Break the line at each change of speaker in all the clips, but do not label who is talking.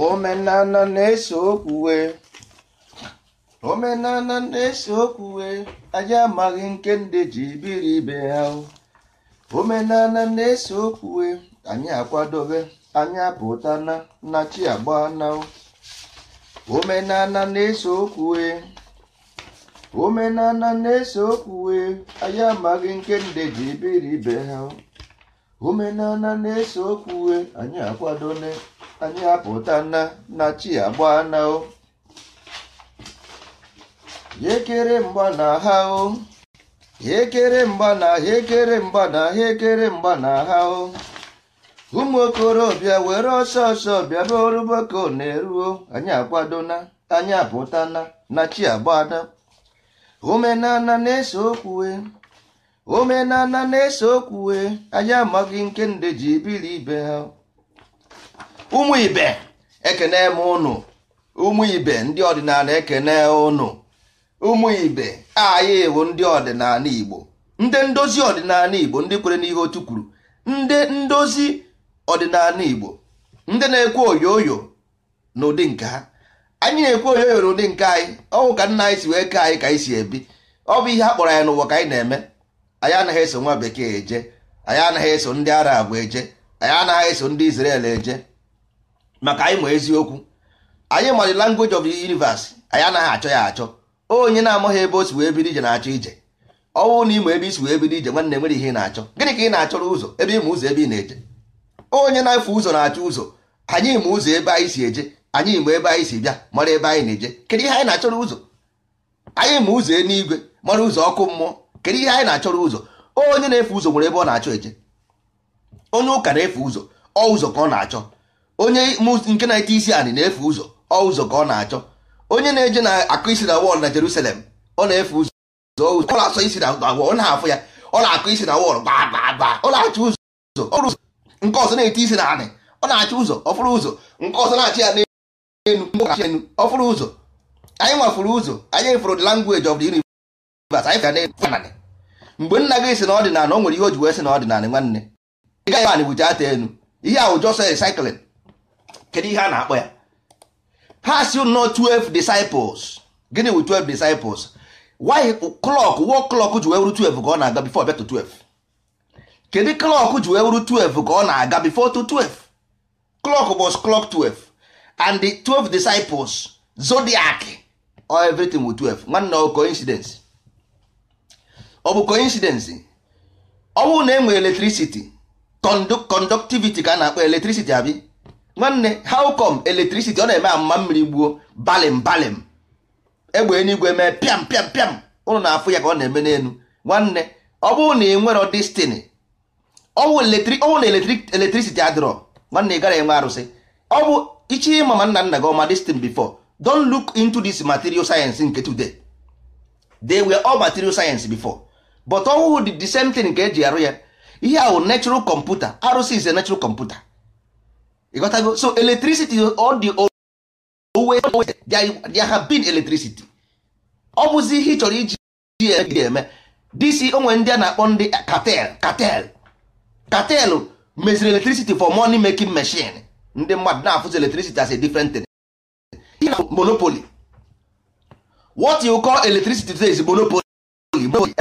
omenana na-ese okwuwe omenala na-ese okwuwe anyị amaghị nke ndị ji biri ibe ha omenana na-ese okwuwe anyị akwadobe anyị apụta na nnachi chi agba na omenana na-ese okwuwe omenala na-ese okwuwe anyị amaghị nke ndị ji biri ibe ha omenana na-ese okwuwe anyị akwadone. anyị apụta na na chi agba na o yekere mgba na ha o ekere mgba na ha ekere mgba na ha ekere mgba na ha o ụmụ okorobịa were ọsọ ọsọ bịa be oruboko na-eruo anyị akwado na anyị apụta na na chi agbada omenala na-ese okwue omenala na-ese okwue anyị amaghị nke nde ji biri ibe ha ụmụ ibe ekene m ụnụ ụmụ ibe ndị ọdịnala ekene ụnụ ụmụ ibe anyị wụ ndị ọdịnala igbo ndị ndozi ọdịnala igbo ndị kwere n'ihe otu kwuru ndị ndozi ọdịnala igbo ndị na-ekwe oyoyo n'ụdị nke ha anyị na-ekwe oyoyo n'ụdị nke anyị ọnwụ ka nna anyị si wee kee anyị ka anyị si ebi ọ bụ ihe a kpọrọ anyị n'ụwa ka anyị na-eme anyị anaghị eso nwa bekee eje anyị anaghị eso ndị arab eje anyị anaghị eso ndị Israel eje maka anyị ma eziokwu anyị ma language of the universe anyị anaghị achọ ya achọ onye na-amaghị ebe o si wee bido ije na-achọ ije ọnwụ na ịma ebe isi wee bido ije nwanne nwere ihe ị na-achọ gịnị ka ị na-achọrọ ụzọ ebe ịma ụzọ ebe ị na-eje onye na-efe ụzọ na-achọ ụzọ anyị ma ụzọ ebe anyị si eje anyị ma ebe anyị si bịa mara ebe anyị na-eje kedu ihe anyị na-achọrọ ụzọ anyị ma ụzọ eluigwe mara ụzọ ọkụ mmụọ kedu ihe anyị na-achọrọ ụzọ onye na-efe ụzọ nwere ebe ọ na-achọ eje onye ụka na-efe ụzọ ọ ụzọ ka ọ na-achọ onye nke na-ete isi anị na efe ụzọ ọ ụzọ ka ọ na-achọ onye na-eje na akụ isi na wọl na Jerusalem ọ na-efu ụzọ ọ na-asọ isi na wọl ọ na-afụ ya ọ na-akụ isi na wọl ọ na-achọ ụzọ ụzọ nke ọzọ na-ete isi na anị ọ na-achọ ụzọ ọfụrụ ụzọ nke ọzọ na-achị ya n'elu enu ọfụrụ ụzọ anyị nwafụrụ ụzọ anyị fụrụ mgbe nna gị si na ọdịnala o nwere ihe o ji wee si na ọdịnala nwanne ị gaghị anị bụcha ata enu ihe a jọsọ kedu ihe a na-akpọ ya ha si nọ 12 disciples gịnị wu 12 disciples why clock wo clock ji wee wuru 12 ka ọ na-aga before bịa 12 kedu clock ji wee wuru 12 ka ọ na-aga before to 12 clock was clock 12 and the 12 disciples zodiac or everything with 12 nwanne ọ coincidence ọ bụ coincidence ọ bụrụ na e nwere electricity conductivity ka a na-akpọ electricity abi nwanne how come electricity ọ na-eme amma mmiri gbuo balim balim egbe eluigwe mee pịam pịam pịam ụlọ na-afụ ya ka ọ na-eme n'elu nwanne ọ bụrụ na ị nwere destiny na electricity adịrọ nwanne ị gara enwe arụsị ọ bụ ichi ịma ma nna nna gị ọma destin before don luk into this material science nke today they were all material science before but ọwụ the same thing nke eji arụ ya ihe ahụ natural computer arụsị is a natural computer ịghọtago so electricity all the owe there have been electricity ọ bụzi ihe ị chọrọ iji eme dc onwe ndị a na-akpọ ndị cartel cartel cartel meziri electricity for money making machine ndị mmadụ na-afụzi electricity as a different thing monopoly what you call electricity today is monopoly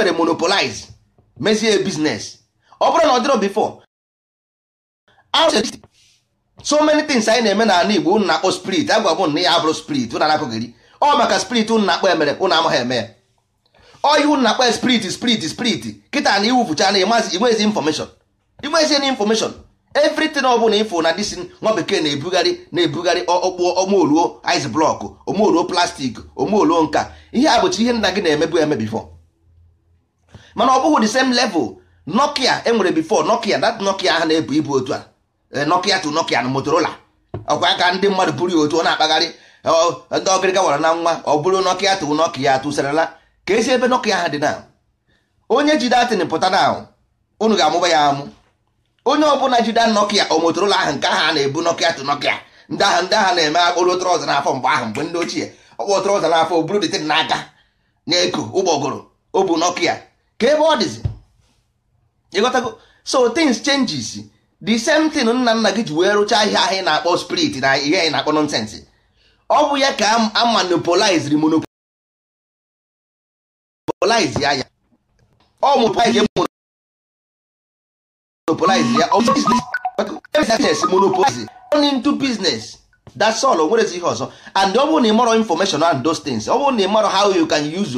e monopolize mezie business ọ bụrụ na ọ dịrọ before so many things anyị na-eme n'ala Igbo unu na-akpọ spirit agwa m na ya abụrụ spirit unu anakụghịrị ọ maka spirit ụnụ na-akpọ emere ụnụ amaghị eme ya ọ ihe unu na-akpọ spirit spirit spirit kịta na iwufucha na ịmazi inwezi infọmeshọn inwezi na infọmeshọn evritin ọ bụla ifo na disin nwa bekee na-ebugharị na-ebugharị ọkpụọ omeoluo ice blọkụ omeoluo plastik omeoluo nka ihe a bụcha ihe nna gị na-emebu eme bifo mana ọ bụghị the same level nokia enwere bifo nokia that nokia ahụ na-ebu ibu otu a Eh, Nokia to Nokia na Motorola ọkwa ka ndị mmadụ bụrụ ya otu ọ na-akpagharị ndị ọgịrịga wara na nwa ọ bụrụ Nokia to Nokia tụsarala ka esi ebe Nokia ha dị na onye jide atịnị pụta na unu ga-amụba ya amụ onye ọbụla jide Nokia o Motorola ahụ nke ahụ a na-ebu Nokia to Nokia ndị ahụ ndị ahụ na-eme akpụrụ trọza n'afọ mgbe ahụ mgbe ndị ochie ọkpọ trọza n'afọ o buru dịtịn n'aka na-eko ụgbọgụrụ o bu Nokia ka ebe ọ dịzi ịghọtago so things changes the same thing nna nna gị ji wee rụchaa ahịa ahịa na-akpọ spirit na ihe anyị na-akpọ ọ bụ ya ka a monopoliziri monopolize ya ọ monopolize ya business business nwerezi ihe ọzọ and ọ bụrụ na ị information and those things ọ bụrụ na ị mọrọ how you can use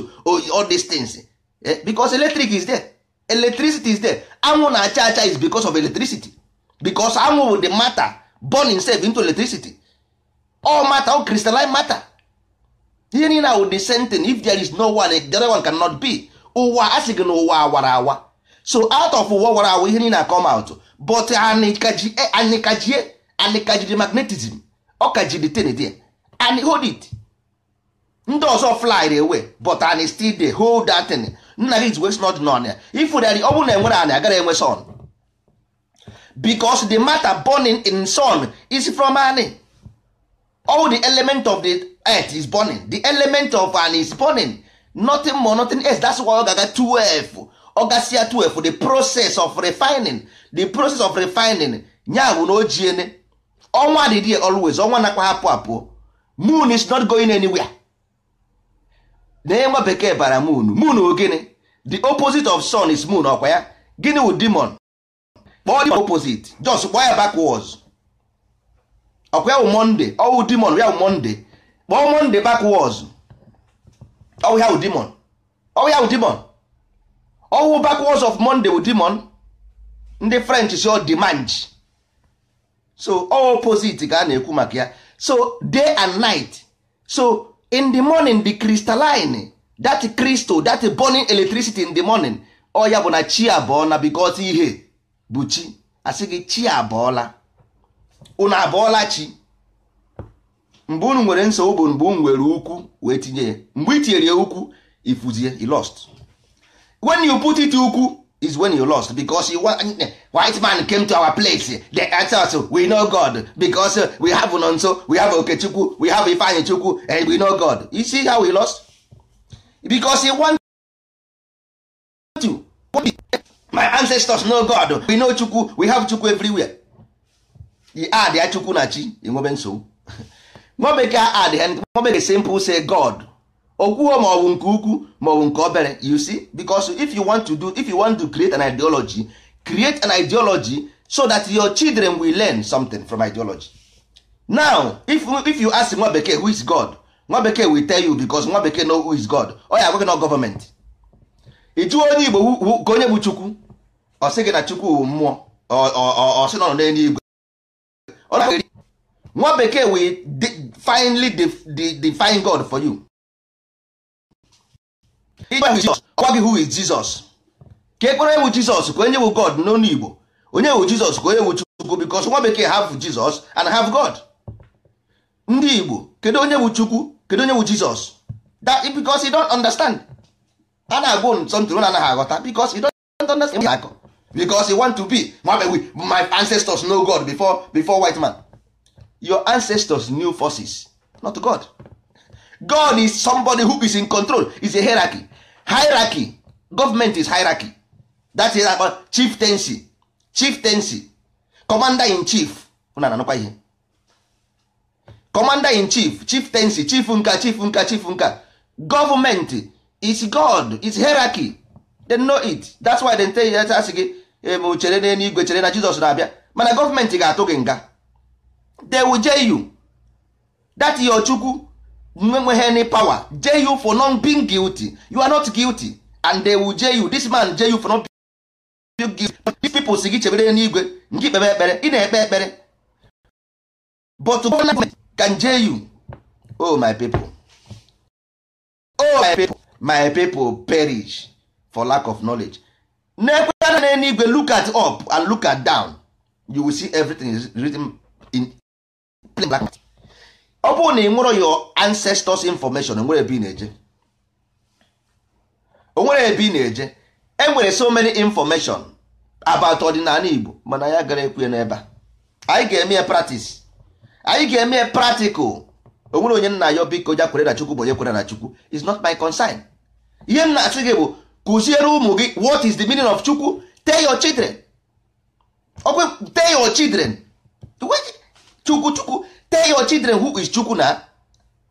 all these things eh, because electric is there electricity is there anwụ na-acha acha is bicos of electricity because anwụ bụ the matter born itself into electricity all matter all crystalline matter ihe niile ahụ the same thing if there is no one the other one cannot be ụwa a sị gị na ụwa awara awa so out of ụwa awara awa ihe niile na-come out but anyị kajie anyị magnetism ọ kajiri ten there and hold it ndị ọzọ fly away but anyị still dey hold that thing nna gị is wee snod n'ọnya ifu ọ bụrụ na enwere anyị agaghị enwe son because the matter burning in sun is from an all the element of the earth is burning the element of an is burning nothing more nothing else that's why ọ gaga 12 ọgasịa 12 the process of refining the process of refining ya bụ na ojiene ọnwa dị dị always ọnwa nakwa hapụ apụ moon is not going anywhere na nwa bekee bara moon moon ogene the opposite of sun is moon ọkwa ya gịnị wụ demon kpọọ demon opposite just kpọọ ya backwards ọkwa ya wụ monde ọwụ demon ya wụ monde kpọọ monde backwards ọwụ ya wụ demon ọwụ ya wụ demon ọwụ backwards of monde wụ demon ndị french si ọ demange so ọ opposite ka a na-ekwu maka ya so day and night so in the morning the crystalline that crystal that burning electricity in the morning ọ ya bụ na chi abụọ na because ihe bụ chi asị gị chi abọọla unu abọọla chi mgbe unu nwere nsogbu bụ mgbe unu nwere ukwu wee tinye ya mgbe tinyere ya ukwu ifuzie you lost when you put it ukwu is when you lost because you white man came to our place dey answer us we know God because we have Nonso we have Okechukwu we have Ifeanyichukwu and we know God you see how we lost he want my ancestors know god we know chukwu we have chukwu everywhere the ad ya chukwu na chi enwebe nsogbu nwa bekee ad ha nwa simple say god okwuo ma ọ bụ nke ukwu ma ọ bụ nke obere you see because if you want to do if you want to create an ideology create an ideology so that your children will learn something from ideology now if, if you ask nwa bekee who is god nwa bekee will tell you because nwa bekee know who is god ọ ya agwaghị na government. ị onye igbo ka onye bụ chukwu ọ sị gị na chukwu bụ mmụọ ọ sị nọ n'eluigwe nwa bekee we finally define god for you ọgwa gị who is jesus ka ekpere ewu jizọs ka onye wu god n'onu igbo onye wu jizọs ka onye wu chukwu because nwa bekee have jesus and have god ndị igbo kedu onye wu chukwu kedu onye wu jizọs that because you don't understand a na-agwụ ntụ na anaghị aghọta because you don't understand akọ because e want to be my ancestors know god before before white man your ancestors knew forces not god god is somebody who is in control is a hierarchy hierarchy government is hierarchy that is about chieftaincy chieftaincy commander in chief una ananụkwa ihe commander in chief chief chieftaincy chief nka chief nka chief nka government is god is hierarchy they know it that's why they tell you asị gị ebe chere n'elu igwe chere na Jizọs na-abịa mana gọọmenti ga-atụ gị nga they will jail you that your chukwu nwenweghị any power jail you for not being guilty you are not guilty and they will jail you this man jail you for not being guilty these people si gị chebere n'igwe ngị kpebe ekpere ị na-ekpe ekpere but government can jail you oh my people oh my people my people perish for lack of knowledge na-ekweta na n'eluigwe look at up and look at down you will see everything is written in plain black matter. ọ na ị nwụrụ your ancestors information onwere ebe ị na-eje onwere ebe ị na-eje e so many information about ọdịnala Igbo mana ya gara ekwe n'ebe a anyị ga-eme ya practice anyị ga-eme practical onwere onye nna ya biko ja kwere na Chukwu bụ onye kwere na Chukwu is not my concern ihe m na-asị gị bụ kụziere ụmụ gị what is the meaning of chukwu tell your children ọkwe tell your children chukwu chukwu tell your children who is chukwu na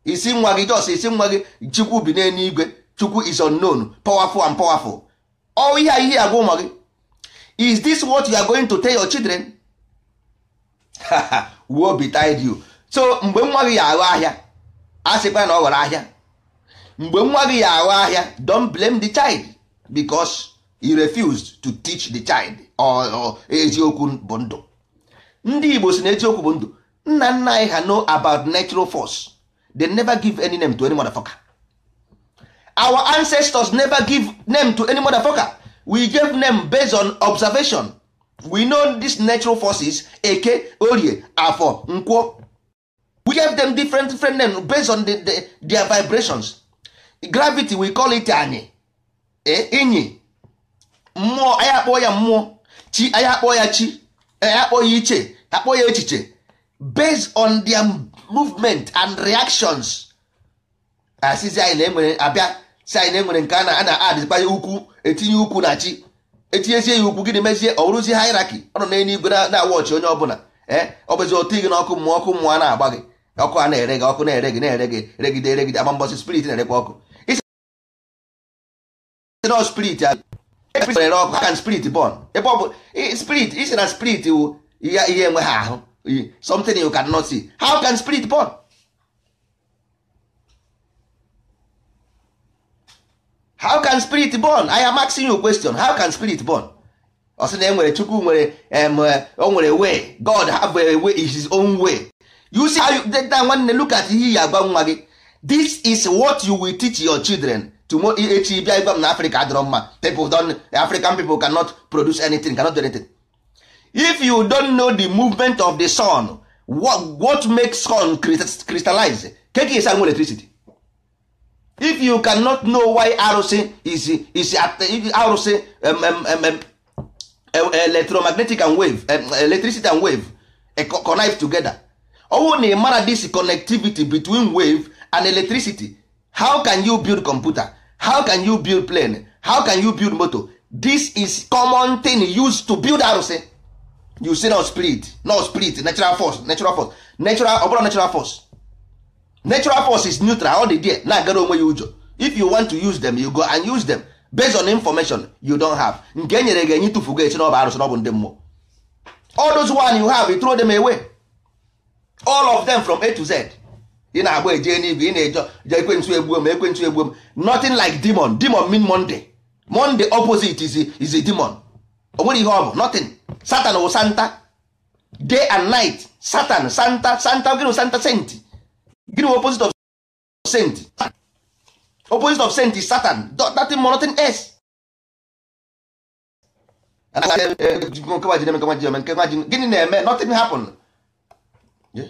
isi nwa gị jos isi nwa gị chukwu bi n'eluigwe chukwu is unknown powerful and powerful ọ ihe a ihe agwa ụmụ gị is this what you are going to tell your children be tied you so mgbe nwa gị ya aghọ ahịa a sịkwa na ọ ghọrọ ahịa mgbe nwa gị ya aghọ ahịa don't blame the child because he refused to teach the child or eziokwu bụ ndụ ndị Igbo si na eziokwu bụ ndụ nna nna anyị ha know about natural force they never give any name to any motherfucker our ancestors never give name to any motherfucker we gave name based on observation we know this natural forces eke orie afọ nkwo we gave them different different name based on the, the, their vibrations gravity we call it anyị E, enyi mmụọ anyị akpọ ya mmụọ chi anyị akpọ ya chi e, anyị akpọ ya iche akpọọ ya echiche based on their movement and reactions asịzi anyị na-enwere abịa si anyị na-enwere nke a na-ana adịkpanye ukwu etinye ukwu na chi etinyezie ya ukwu gịnị mezie ọ bụrụzie haịraki ọ nọ n'elu igwe na-awọchị onye ọbụla ee ọ bụzi otu gị n'ọkụ mmụọ ọkụ mmụọ a na-agba gị ọkụ a na-ere gị ọkụ na-ere gị na-ere gị regide regide agba mbọsị spirit na-erekwa ọkụ nọ spirit ere ọkụ can spirit born ebe eh, ọ bụ spirit isi na spirit wu oh. ihe enwe ahụ ahụ oh. something you cannot see how can spirit born how can spirit born i am asking you question how can spirit born ọ sị na enwere chukwu nwere o nwere way god have a way is his own way you see how you that nwanne look at ihe ya agwa nwa gị this is what you will teach your children tomorrow echi bịa ịgwa m na Africa adịrọ mma people don African people cannot produce anything cannot do anything if you don't know the movement of the sun what, what makes sun crystallize keke is anwụ electricity if you cannot know why arụsị is is arụsị um, um, um, um, electromagnetic and wave um, electricity and wave e, connive together ọ na ị mara this connectivity between wave and electricity how can you build computer how can you build plane how can you build moto this is common thing used to build arụsị eh? you say no spirit no spirit natural force natural force natural ọ bụrụ natural force natural force is neutral all the day na-agara onwe ya ụjọ if you want to use them you go and use them based on information you don have nke e nyere gị enye tụfugo echi na ọ bụ arụsị na ọ bụ ndị mmụọ all those one you have you throw them away all of them from a to z ị na-agba eje n'igwe ị na-eje je ekwentị egbuo m ekwentị egbuo m nothing like demon demon mean monday monday opposite is is a demon o nwere ihe ọ bụ nothing satan wụ santa day and night satan santa santa gịnị santa saint gịnị opposite of saint opposite of saint is satan nothing more nothing else eh, eh, gịnị na-eme nothing happen yeah.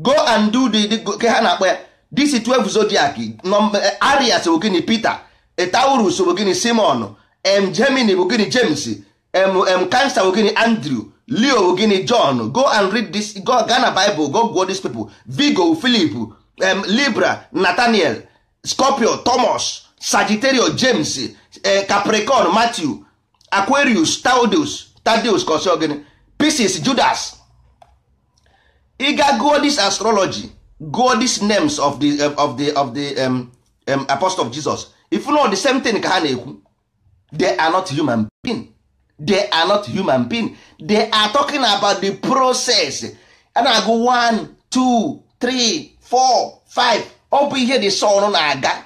go and do the ke ha na-akpọ ya this 12 zodiac eh, arias bụ Peter Taurus bụ Simon m Gemini bụ gịnị James mm Cancer bụ Andrew Leo bụ John go and read this go Ghana Bible go gụọ these people vigo Philip Libra Nathaniel Scorpio Thomas Sagittario James eh, Capricorn Matthew Aquarius taudus Tadeus ka ọ gịnị Pisces Judas ị ga gụọ this astrology gụọ these names of the eh, of the of the um, um, apostle of Jesus if know the same thing ka ha na-ekwu they are not human being they are not human being they are talking about the process a na-agụ 1 2 3 4 5 ọ bụ ihe the sun na-aga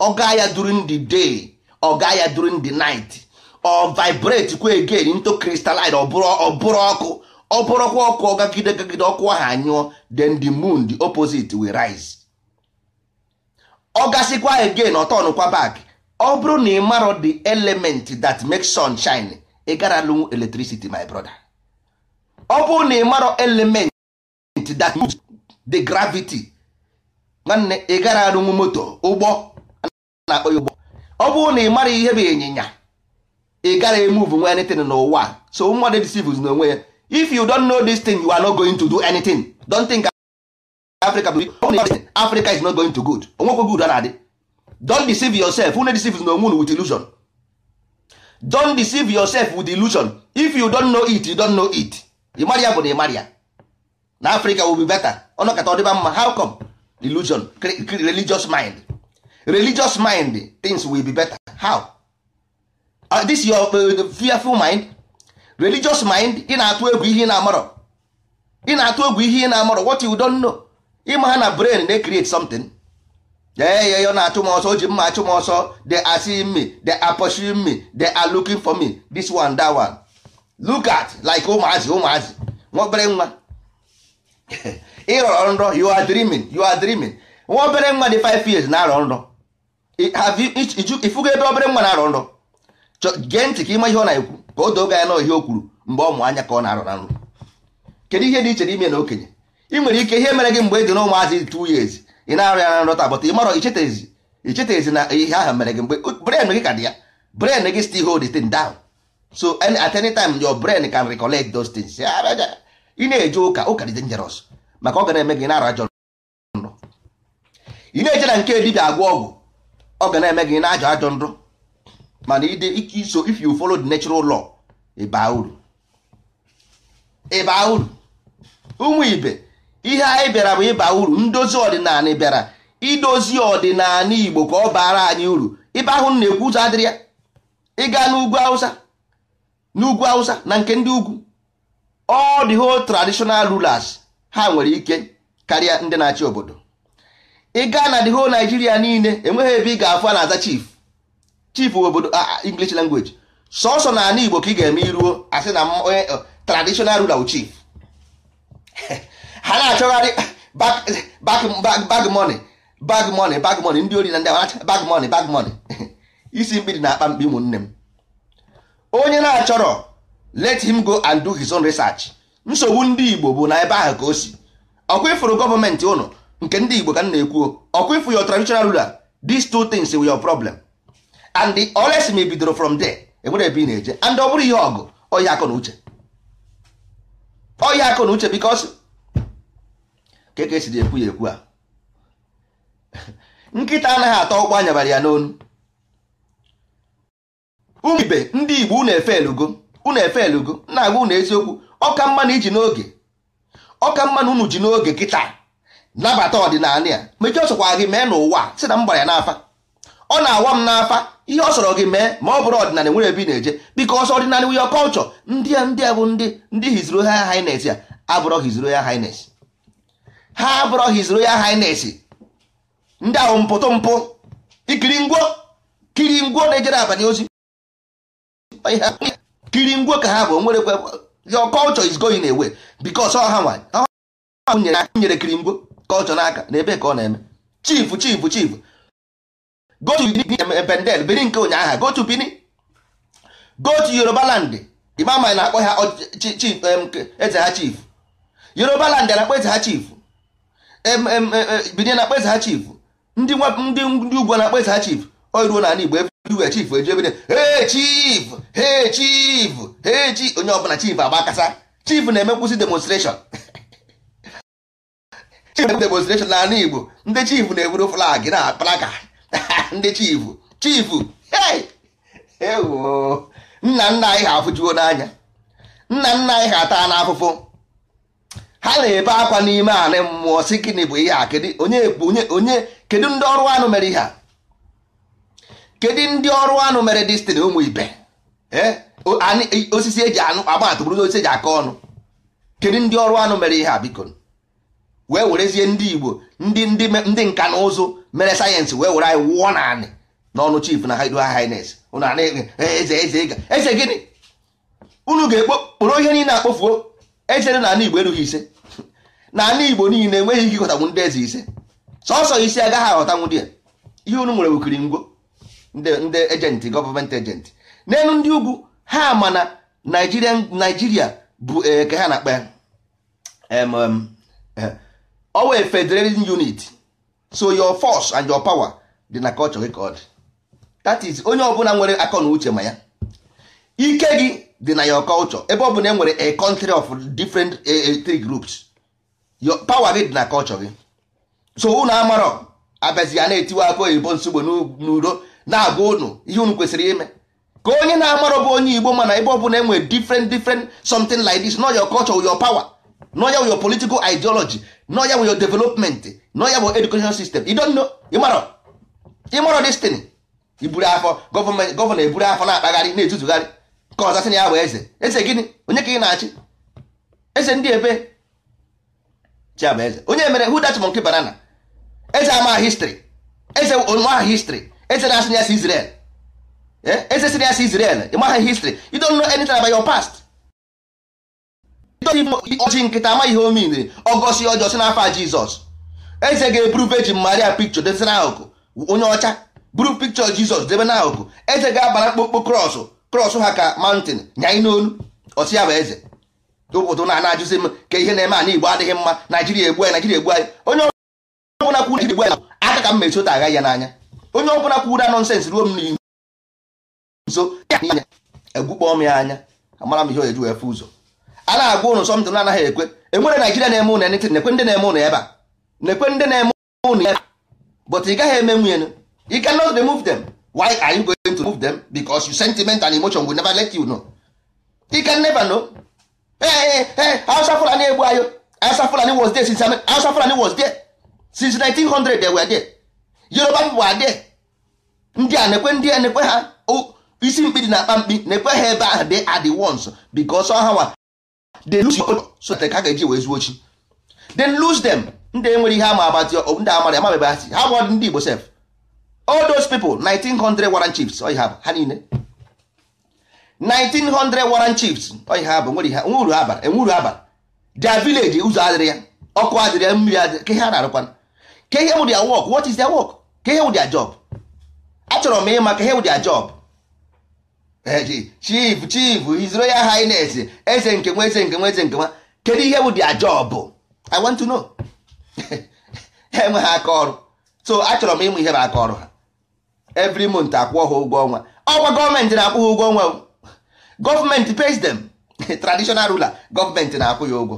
ọ gaa ya during the day ọ gaa ya during the night ọ vibrate kwa again into crystalline ọ bụrụ ọkụ ọ bụrụkwa ọkụ ọgagide gagide ọkụ ahụ anyụọ then the moon the opposite will rise ọ gasịkwa again kwa back ọ bụrụ na ị marọ the element that makes sun shine ị gara lụnwu electricity my brother ọ bụrụ na ị marọ element that moves the gravity nwanne ị gara alụnwu moto ụgbọ na-akpọ ụgbọ ọ bụrụ na ị mara ihe bụ ịnyịnya ị gara emuvu nwe anything n'ụwa so mmadụ disivụz n'onwe ya if you don't know this thing you are not going to do anything don't think africa africa is not going to good onwekwe good na-adị don't deceive yourself unu deceive na onwe with illusion don't deceive yourself with illusion if you don't know it you don't know it ịmara ya bụ na ịmara na africa will be better ọnọkata ọdịba mma how come illusion religious mind religious mind things will be better how uh, this your uh, fearful mind religious mind ị na-atụ egwu ihe ị na-amarọ ị na-atụ egwu ihe ị na-amarọ what you don't know ịma ha na brain na-create something ee ya na-achụ m ọsọ o ji mma achụ m ọsọ they are seeing me they are pursuing me they are looking for me this one that one look at like ụmụazị ụmụazị nwobere nwa ịrọrọ nrọ you are dreaming you are dreaming nwa obere nwa dị 5 years na-arọ nrọ ifugo ebe obere nwa na-arọ nrọ gee ntị ka ịma ihe ọ na-ekwu ka o doo gị anya na ihe o kwuru mgbe ọ mụ anya ka ọ na-arụ na nrụ kedu ihe dị iche n'ime na okenye ị nwere ike ihe mere gị mgbe ị dị na ụmụazị two years ị na-arụ ya na nrọta bụta ị mara ichetezi ichetezi na ihe ahụ mere gị mgbe brain gị ka dị ya brain gị still hold the thing down so at any time your brain can recolect those things ị na-eje ụka ụka dị dangerous maka ọ ga na-eme gị na-arụ ajọ nrọ ị na eche na nke dibịa agwọ ọgwụ ọ ga na-eme gị na-ajọ ajọ nrọ mana ide so if you follow the natural law ịba uru ịba uru ụmụ ibe ihe anyị bịara bụ ịba uru ndozi ọdịnala bịara idozi ọdịnala igbo ka ọ bara anyị uru ibe ahụ na-ekwu ụzọ adịrị ya ịga n'ugwu hausa n'ugwu hausa na nke ndị ugwu all the whole traditional rulers ha nwere ike karịa ndị na-achị obodo ịga na the whole niile enweghị ebe ị ga-afụ a na-aza chief chief obodo ah, ah, english language sọsọ na ala igbo ka ị ga-eme iruo asị na onye eh, eh, traditional ruler chief ha na-achọgharị bag money bag money bag money ndị ori na ndị abacha bag money bag money isi mkpi dị na akpa mkpi ụmụnne m onye na-achọrọ let him go and do his own research nsogbu ndị igbo bụ na ebe ahụ ka o si ọkwa ịfụrụ gọọmenti ụnụ nke ndị igbo ka m na ekwuo ọkwa ịfụ your traditional ruler these two things were your problem and the ma bidoro from there enwere ebe ị na-eje and ọ bụrụ ihe ọgụ ọya akụ na uche ọya akụ na uche because ka ka esi ekwu ya ekwu a nkịta anaghị atọ ụkwụ anyabara ya n'onu ụmụ ibe ndị igbo unu efe elugo unu efe elugo na-agwa ụnụ eziokwu ọka mma na iji n'oge ọka mma na unu ji n'oge kịta nabata ọdịnala ya mejọọ sokwa gị mee n'ụwa si na m gbara ya n'afa ọ na-awa m n'afa ihe ọ sọrọ gị mee ma ọ bụrụ ọdịnala nwere ebe ị na-eje because ọdịnala wi your culture ndị a ndị a bụ ndị ndị his royal highness ya abụrọ his royal highness ha abụrọ his royal highness ndị ahụ mpụtụ mpụ ikiri ngwo kiri ngwo na-ejere abanye ozi kiri ngwo ka ha bụ nwere your culture is going away because ọ ha nwa nyere kiri ngwo kọlchọ n'aka na ebe ka ọ na-eme Chifu chifu chifu. go to eh, pendel biri nke ụnyaahụ go to bini go to yoruba land ịma ma na-akpọ ha chief eze ha chief yoruba land na-akpọ eze ha chief bini na-akpọ eze ha chief ndị ndị ugwu na-akpọ eze ha chief o ruo n'ala igbo everywhere chief eji chief hey chief hey chief onye ọbụla chief agbakasa kasa chief na-eme nkwụsị demonstration chief na-eme demonstration n'ala igbo ndị chief na-eburu flag na plaka ndị chifu chifu ewo nna nna anyị ha afụjuo n'anya nna nna anyị ha taa n'afụfụ ha na-ebe akwa n'ime anị mmụọ si gịnị bụ ihe a onye bụ onye onye kedu ndị ọrụ anụ mere ihe a kedu ndị ọrụ anụ mere destiny ụmụ ibe osisi eji anụ agbatụbụrụ osisi eji aka ọnụ kedu ndị ọrụ anụ mere ihe a biko wee werezie ndị igbo ndị ndị nka na ụzụ mere sayensị wee were anyị wụọ naanị n'ọnụ chief na highness e, eze eze ịga eze gịnị unu ga-ekpokporo ihe niile akpofuo eze na ala igbo erughị ise na ala igbo niile enweghị ike ịghọtanwu ndị eze ise sọsọ isi agaghị aghọta dị ya ihe unu nwere wukiri ngwo ndị ejenti gọọmenti ejenti n'elu ndị ugwu ha ma na naijiria bụ eh, ka ha na-akpa ya eh, owe federating unit so your force and your power dị na culture gị ka ọ dị that is onye ọbụla nwere akọ na uche ma ya ike gị dị na your culture ebe ọ bụ na enwere a country of different three groups your power gị dị na culture gị so unu amarọ abịazi ya na-etiwe aka oyibo nsogbu n'udo na-agwa unu ihe unu kwesịrị ime ka onye na-amarọ bụ onye igbo mana ebe ọ e nwere different different something like this not your culture your power not your political ideology nọ ya bụ your development nọ ya bụ education system you don't know ịmarọ ịmarọ destiny iburu afọ gọvanọ gọvanọ eburu afọ na-akpagharị na-etutugharị ka ọza sị na ya bụ eze eze gịnị onye ka ị na-achị eze ndị ebe chiamaeze onye mere who that monkey banana eze ama history eze nwa history eze na-asị ya si Israel eze sị na ya si Israel ịmaha history you don't know anything about your past ọjị nkịta ama ihe omin ọgọsi ọjọọ si n'afọ jizọs eze ga-eburuve ji maria pikchọ debe n'akụkụ onye ọcha buru pikcho jizọs debe n'akụkụ eze ga-abara mkpụkpụ krọsụ krọsụ ha ka mantin nyanyị n'olu ọsị ya bụ eze ụfọdụ na ajụzi m ka ihe na-eme ana igbo adịghị mma naijiria egbu anyị naijiria egbu anyị onye ọbụla kwuru igbo anyị aka ka m mechota agha ya n'anya onye ọbụla kwuru nọnsensị ruo m n'ihu nso egbukpọọ m ya anya amara m ihe o eju efe ụzọ a na-agwa ụnụ sọmtụ anaghị ekwe enwere naijiria na-eme ụnụ enitin nekwe ndị na-eme ụnụ ebe a nekwe ndị na-eme ụnụ ebe but ị gaghị eme nwunye you cannot move them why are you going to move them because your sentiment and emotion will never let you know you can never know ee ee Hausa Fulani egbu ayo Hausa Fulani was there since Hausa Fulani was there since 1900 they were there Yoruba people were there ndị a nekwe ndị a nekwe ha oh, isi mkpi dị na akpa mkpi nekwe ha ebe ahụ they are the ones because ọha nwa they lose your so that ha ga-eji wee zuo chi then lose them ndị nwere ihe ama abatị ndị amara ama bebe asị ha gwọrọ ndị Igbo sef all those people 1900 warrant chiefs ọ ha ha niile 1900 warrant chiefs ọ ha bụ nwere ihe nwuru ha abara. enwuru ha bara their village ụzọ adịrị ya ọkụ adịrị ya mmiri adịrị ka ihe a na-arụkwana ka ihe wụ their work what is their work ka ihe wụ their job achọrọ m ịma ka ihe wụ their job chief chief his ya highness eze nke nwa eze nke nwa eze nke nwa kedu ihe bụ dia job i want to know ha enweghị aka ọrụ so achọrọ m ịmụ ihe bụ aka ọrụ ha every month akwụọ ha ụgwọ ọnwa ọkwa gọọmenti na-akwụ ha ụgwọ ọnwa gọọmenti pays them traditional ruler gọọmenti na-akwụ ya ụgwọ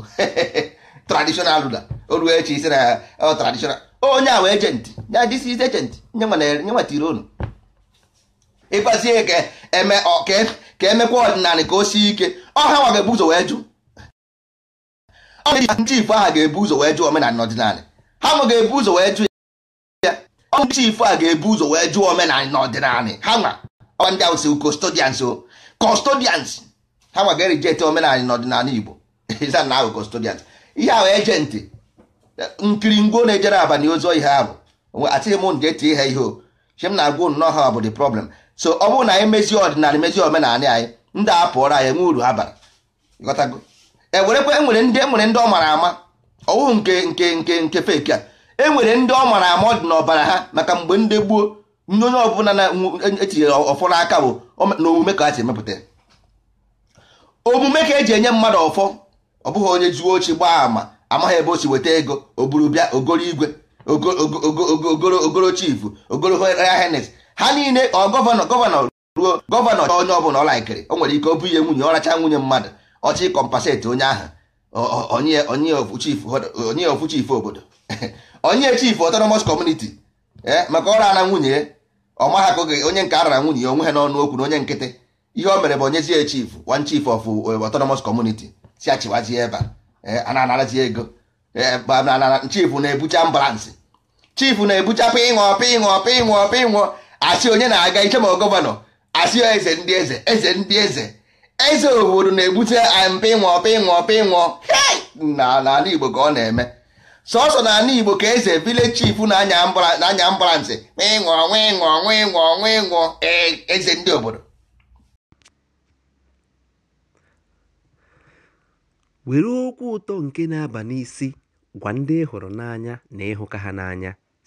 traditional ruler o ruo echi isi na oh, traditional onye a wee agent ya this is agent nye nwetara unu ịkpazie e ka eme ka emekwa ọdịnala ka o sie ike ọha nwa ga-ebu ụzọ wee jụ ndị ifo aha ga-ebu ụzọ wee jụ omenala n'ọdịnala ha nwa ga-ebu ụzọ wee jụ ya ọ ndị ifo a ga-ebu ụzọ wee jụ omenala n'ọdịnala ha nwa ọwa ndị ahụ si custodians o custodians ha nwa ga-erijete omenala na ọdịnala Igbo ịza na ahụ custodians ihe ahụ ejenti nkiri ngwo na-ejere abalị ozi ihe ahụ atịghị m ga-eti ha ihe o che m na-agwa nnọọ ha bụ the problem so ọ bụrụ na anyị mezie ọdịnala mezie omenala anyị ndị a pụọrọ anyị enwe uru ha bara ghọtago ewerekwa enwere ndị enwere ndị ọ mara ama ọwụ nke nke nke nke feki a enwere ndị ọ mara ama ọ dị n'ọbara ha maka mgbe ndị gbuo nye onye ọbụla na-etinyere ọfọ n'aka bụ na omume ka ha si emepụta omume ka eji enye mmadụ ọfọ ọ bụghị onye zuo ochi gbaa ama amaghị ebe o si weta ego o buru bịa ogoro igwe ogoro chifu ogoro henes ha niile ọ gọvanọ gọvanọ ruo gọvanọ onye ọbụla ọ laikiri o nwere ike ọ ihe nwunye ọracha nwunye mmadụ ọchị kọmpaseti onye ahụ onye ofu chifu obodo onye chifu autonomous community e, maka ọ rara nwunye ọma ha akụghị onye nke arara nwunye onwe ha n'ọnụ okwu na onye nkịtị ihe o mere bụ onyezie ya chief one chief of eh, autonomous community si achịwazie ebe a eh, na-anarazi ego eh, chief na-ebucha ambalansị chief na-ebucha pịṅụ pịṅụ pịṅụ pịṅụ asị onye na-aga iche ma gọvanọ asị eze ndị eze eze ndị eze eze obodo na-ebute mpa ịnwụọ ọpa n'ala igbo ka ọ na-eme sọsọ na ala igbo ka eze village chief na-anya ambụlansị ịṅụọ nwịṅụọ nwịṅụọ nwịṅụọ eze ndị obodo
were okwu ụtọ nke na-aba n'isi gwa ndị hụrụ n'anya na ịhụka ha n'anya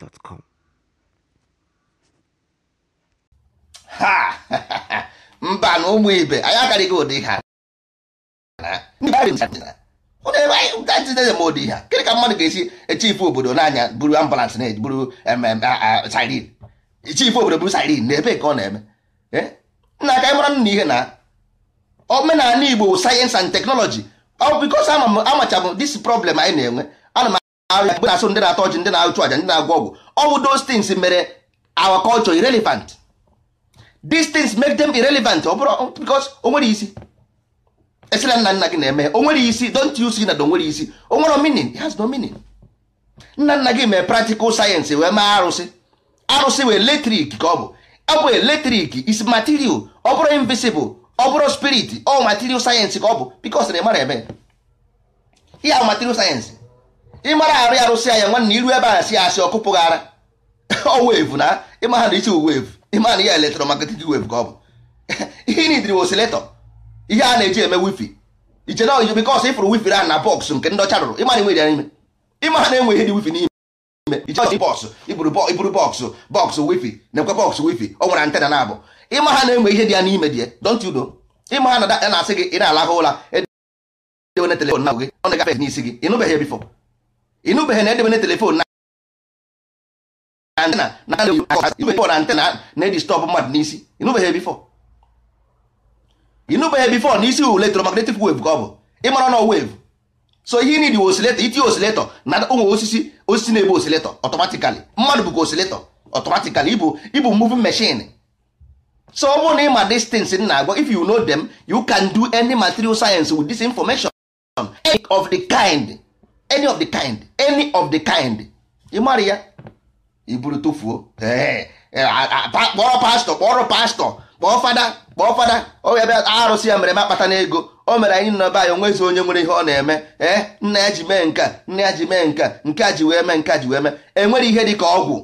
haa!
Ha! Mba na ụmụ ibe anyị akarịghị ụdị ha. ụdị ha kịrị ka mmadụ ga-esi echifu obodo n'anya buru ambulance na buru sirin obodo buru sirin na ebe ka ọ na-eme nna aka mara nna ihe na omenala Igbo sayensị and teknọlọji ọ bikos amachabụ dis problem anyị na-enwe agha na-asụ ndị na-atọ ọchị ndị na-achụ àjà ndị na-agwọ ọgwụ all those things mere our culture irrelevant these things make them irrelevant ọ bụrụ because o nwere isi esila nna nna gị na-eme o nwere isi don't you see na o nwere isi o nwere meaning it has no meaning nna nna gị mee practical science wee mee arụsị arụsị wee eletrik ka ọ bụ ọ bụ eletrik is material ọ bụrụ invisible ọ bụrụ spirit ọ material science ka ọ bụ because na ị mara eme ihe material science ịmara arụ arụsị anya nwanne iru ebe a si asị ọkụpụ gị ara owevu na ịma na isi wevu ịma na ihe elektromagnetic wave ka ọ bụ ihe nidiri osiletọ ihe a na-eji eme wifi iche na ọjọ bikọs ịfụrụ wifi ahụ na bọksụ nke ndị ọcha rụrụ ịma na ya n'ime ịma na enweghị dị wifi n'ime iche ọjọ bọksụ iburu bọks bọksụ wifi na-ekwe bọks wifi ọ nwere antena na abụ ịma na-enwe ihe dị ya n'ime dị ya you know ịma ha na-asị gị ị na-alahụ ụra edewene telefon na gị ọ na-agafe n'isi gị ịnụbeghị bifọ ịnụbeghị na edebe na telefon na antena na na antena na-edistọpụ mmadụ n'isi ịnụbeghị bifọ ịnụbeghị bifọ n'isi electromagnetic wave ka ọ bụ ịmara nọ wave so ihe nidi osileto itinye osileto na ụmụ osisi osisi na-ebu osileto ọtọmatikali mmadụ bụkwa osileto ọtọmatikali ibu ibu moving machine so ọ bụrụ na ịma distance na-agwa if you know them you can do any material science with this information of the kind any of the kind any of the kind ị mara ya iburu tụfuo e, kpọrọ pastọ kpọrọ pastọ kpọọ fada kpọọ fada ọ bịa arụsị ya mere m akpata n'ego o mere anyị nọba ya onwezi onye nwere ihe ọ na-eme ee nna ya ji mee nka nna ya ji mee nka nke a ji wee mee nke a ji wee mee enwere ihe dị ka ọgwụ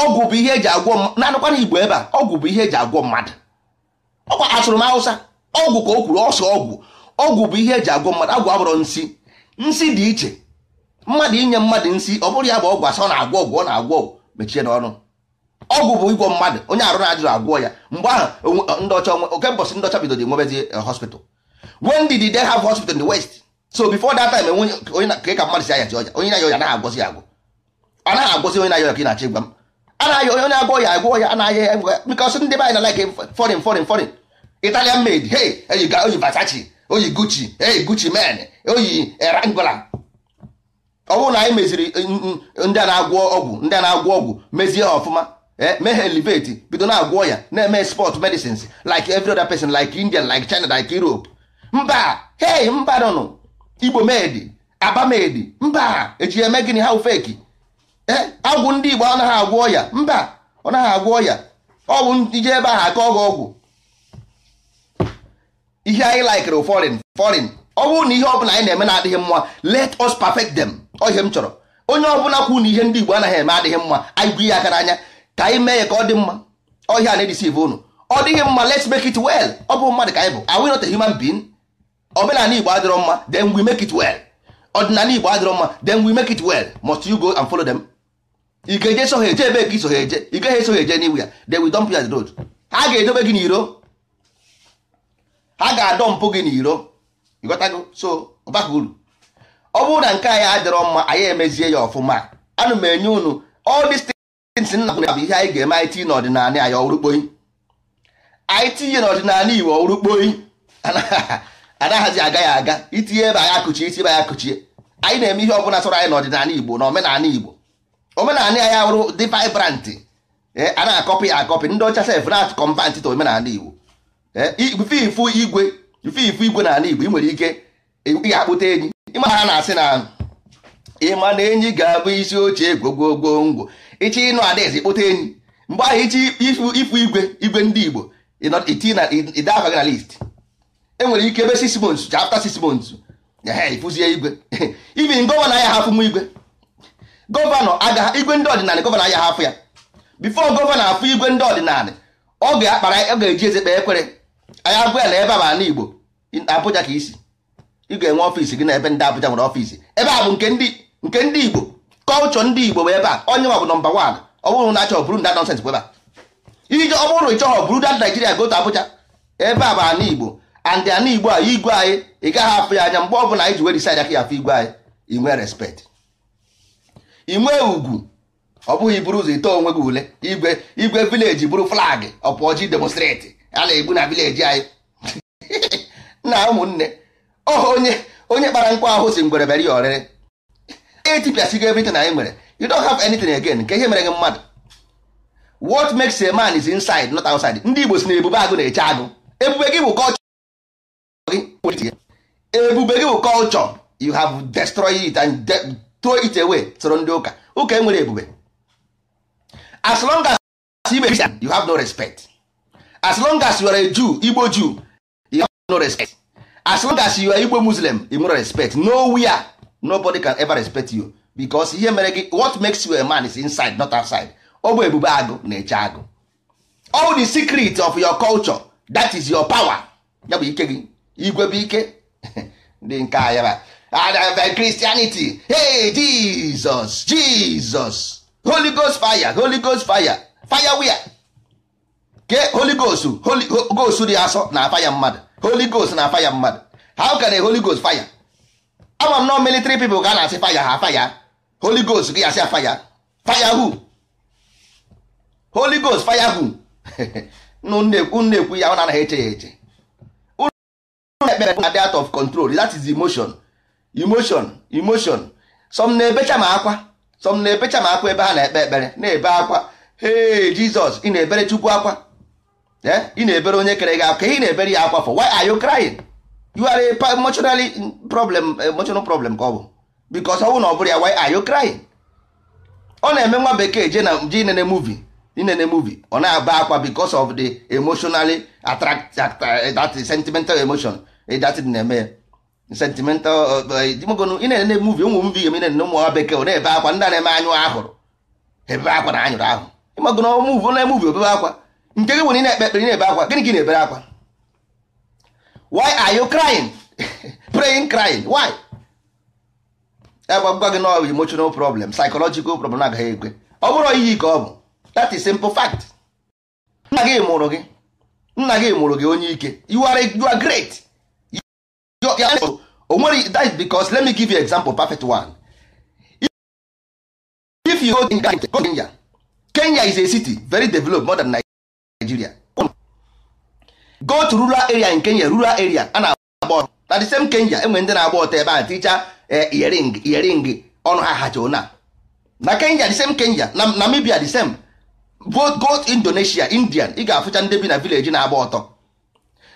ọgwụ bụ ihe eji agwọ na-anụkwana igbo ebe a ọgwụ bụ ihe eji agwọ mmadụ ọkwa asụrụ m awụsa ọgwụ ka o kwuru ọsọ ọgwụ ọgwụ bụ ihe eji agwọ mmadụ agwụ abụrọ nsi nsị dị iche mmadụ inye mmadụ nsị ọ bụrụ ya bụ ọgwụ asọ ọ na-agwọ ọgwụ ọ na-agwọ ọgwụ mechie n'ọnụ ọgwụ bụ ịgwọ mmadụ onye arụ na-ajụrụ agwọ ya mgbe ahụ ndọcha oke mbọsị ndọcha bidoro enwebezie hospital when did they have hospital in the west so before that time onye ka mmadụ si ayachi ọya onye na-aya ọya anaghị agwọzi agwọ ọ naghị agwọzi onye na-aya ọya ka ị na achị gwa m anaghị onye agwọ ya agwọ ya anaghị ya because ndị be anyị na like foreign foreign foreign Italian made hey you Versace oyi gucci eyi gucci men oyi erangula eh, ọ bụrụ na anyị meziri eh, ndị a na-agwọ ọgwụ ndị a na-agwọ ọgwụ mezie ha ọfụma eh, mee ha elevate bido na-agwọ ya na-eme sport medicines like every other person like Indian like China like Europe mba hei mba nọ Igbo medi abamedi mba eji eme gịnị ha feki ee agwụ ndị Igbo anaghị agwọ ya mba ọ naghị agwọ ya ọ ije ebe ahụ aka ọgwụ ọgwụ ihe anyị laikere foreign foreign ọ bụrụ na ihe ọbụla anyị na-eme na-adịghị mma let us perfect them ohe m chọrọ onye ọbụla kwu na ihe ndị Igbo anaghị eme adịghị mma anyị bụ ihe aka n'anya ka anyị mee ya ka ọ dị mma ọhịa na-edisive unu ọ dịghị mma let's make it well ọ bụ mmadụ ka anyị bụ are we not a human being omenala Igbo adịrọ mma then we make it well ọdịnala Igbo adịrọ mma then we make it well must you go and follow them ị eje so eje ebe ka iso ha eje ị gaghị eso ha eje n'iwu ya then we dump you as road ha ga-edobe gị n'iro ha ga-adọ mpụ gị n'iro ịghọtago so ọbaka uru ọ bụrụ na nke anyị adịrọ mma anyị emezie ya ọfụma ana m enye unu all these things nna bụ ihe anyị ga-eme anyị tinye n'ọdịnala anyị ọwụrụkpoyi anyị tinye n'ọdịnala iwu ọwụrụkpoyi anaghịzi aga ya aga itinye ebe anyị akụchie iti ebe anyị akụchie anyị na-eme ihe ọbụla sọrọ anyị n'ọdịnala igbo na omenala igbo omenala ya ahụrụ dị vibrant eh, a na-akọpị ya akọpị ndị ọcha sef na-akọmpa omenala igbo Eh, ifu igwe ifu ifu igwe na ala igbo ị nwere ike ga-akpụta enyi ịma ha na-asị na ịma na enyi ga-abụ isi oche gwogwogwongwo ịchị ịnụ adaeze kpụta enyi mgbe ahụ ịchị ifu igwe igwe ndị igbo ịda afa gị na list e nwere ike ebe six months after six months ifuzie igwe ibi gọvanọ anya hafụ m igwe gọvanọ agaghị igwe ndị ọdịnala gọvanọ anya hafụ ya bifo gọvanọ afụ igwe ndị ọdịnala ọ ga-akpara ọ ga-eji eze kpee ekwere anya abụ ya na ebe a ma Igbo Abuja ka isi ị ga-enwe ọfịs gị na ebe ndị Abuja nwere ọfịs ebe a bụ nke ndị Igbo kọlchọ ndị Igbo bụ ebe a onye nwa bụ nọmba wan ọ bụrụ na achọrọ bụrụ nda nọnsens bụ ebe a ije ọ bụrụ ịchọghọ bụrụ da Naijiria gotu Abuja ebe a bụ ana Igbo andị ana Igbo a igwe anyị ị gaghị afụ ya anya mgbe ọ bụla anyị ji were isi anya ka ya afụ igwe anyị inwe respect inwe ugwu ọ bụghị bụrụ ụzọ ite onwe gị ule igwe igwe vileji bụrụ flag ọpụọji demonstrate a na-egbu na vileji anyị na ụmụnne ọ onye onye kpara nkwa ahụ si ngwere bịara ya ọrịrị etipịasịgo everything anyị nwere you don't have anything again nke ihe mere gị mmadụ what makes a man is inside not outside ndị Igbo si na ebube agụ na-eche agụ ebube gị bụ kọlchọ ebube gị bụ kọlchọ you have destroyed it and throw it away soro ndị ụka ụka enwere ebube as long as you have no respect as long as you are a Jew Igbo Jew you have no respect as long as you are Igbo Muslim you nwere respect nowhere nobody can ever respect you because ihe mere gị what makes you a man is inside not outside ọ bụ ebube agụ na-eche agụ all the secret of your culture that is your power ya bụ ike gị igwe bụ ike dị nke a ya uh, Christianity hey Jesus Jesus Holy Ghost fire Holy Ghost fire fire where ke holy ghost holy dị asọ na afa mmadụ holy ghost na afa mmadụ how can a holy ghost fire ama m nọ military people ka a na-asị fire ha faya holy ghost gị asị fire faya who holy ghost fire who unu ekwu ya ọ na-anaghị eche ya eche ekpere out of control that is emotion emotion emotion some na-ebecha ma akwa some na-ebecha ma akwa ebe ha na-ekpe ekpere na-ebe akwa hey Jesus ị na-ebere Chukwu akwa Eh? ị na-ebere onye kere gị akwa ị na-ebere ya akwa for why are you crying you are a emotionally problem emotional problem ka ọ bụ because ọ bụ na ọ bụrụ ya why are you crying ọ na-eme nwa bekee je na je inene movie inene movie ọ na-aba akwa because of the emotionally attract eh, that sentimental emotion eh, that na-eme sentimental ị na-ene movie ụmụ mvi ga inene ụmụ nwa bekee ọ na-ebe akwa ndị na-eme anyụ ahụrụ ebe akwa na anyụrụ ahụ ịmagona muvi ọ na-emuvi obebe akwa nke gị nwere na-ekpe ekpere na-ebe akwa gịnị gị na-ebere akwa why are you crying praying crying why agwa e gị na emotional problem psychological problem agaghị ekwe ọ bụrụ iyi ka ọ bụ that is simple fact nna gị mụrụ gị nna gị mụrụ gị onye ike you are you are great onwere that is because let me give you example perfect one if you go to Kenya Kenya is a city very developed more than Nigeria go to rural area in Kenya rural area a na-agba ọtọ na the same Kenya enwere ndị na-agba ọtọ ebe a ticha earing eh, earing ọnụ ha hacha na na Kenya the same Kenya na Namibia the same both go Indonesia Indian ị ga-afụcha ndị bi na village na-agba ọtọ